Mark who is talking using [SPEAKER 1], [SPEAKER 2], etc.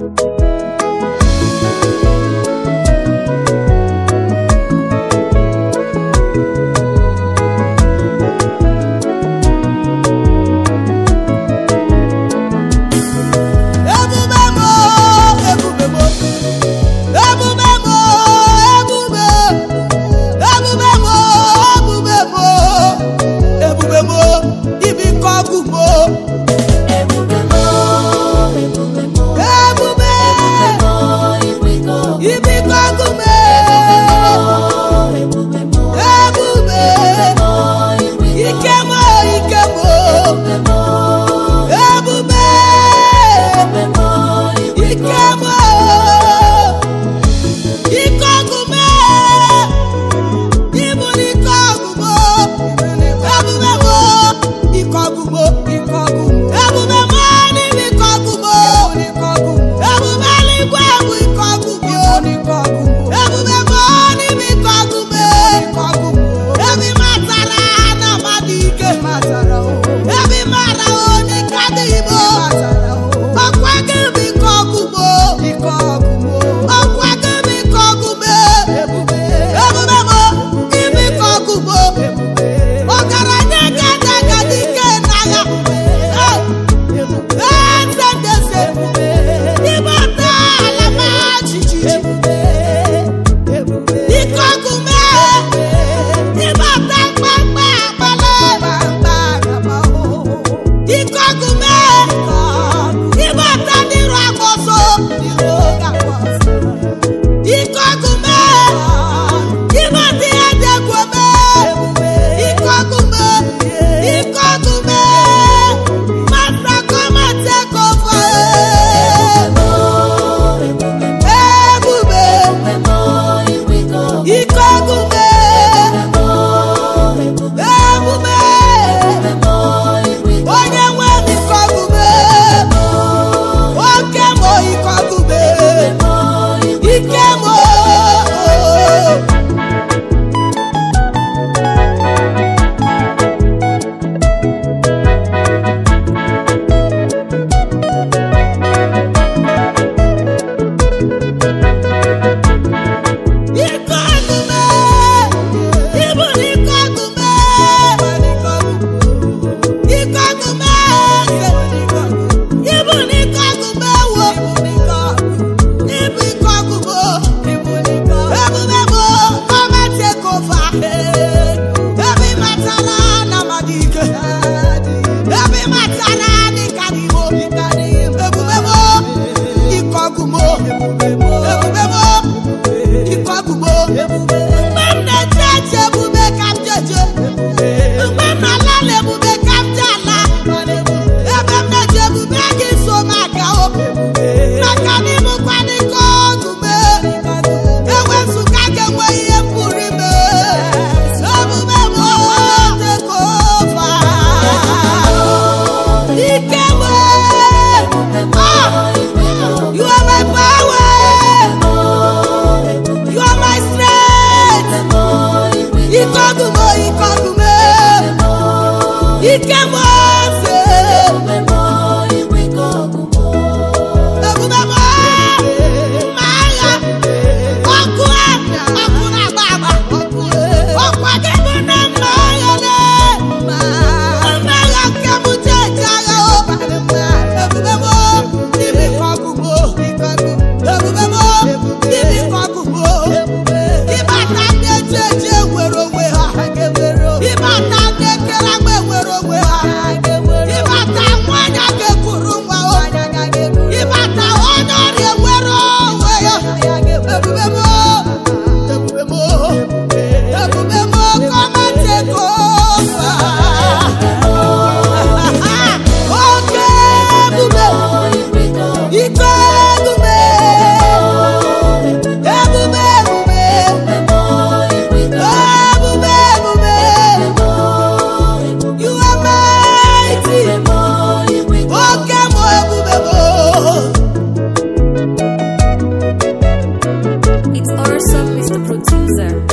[SPEAKER 1] thank you agụba the producer.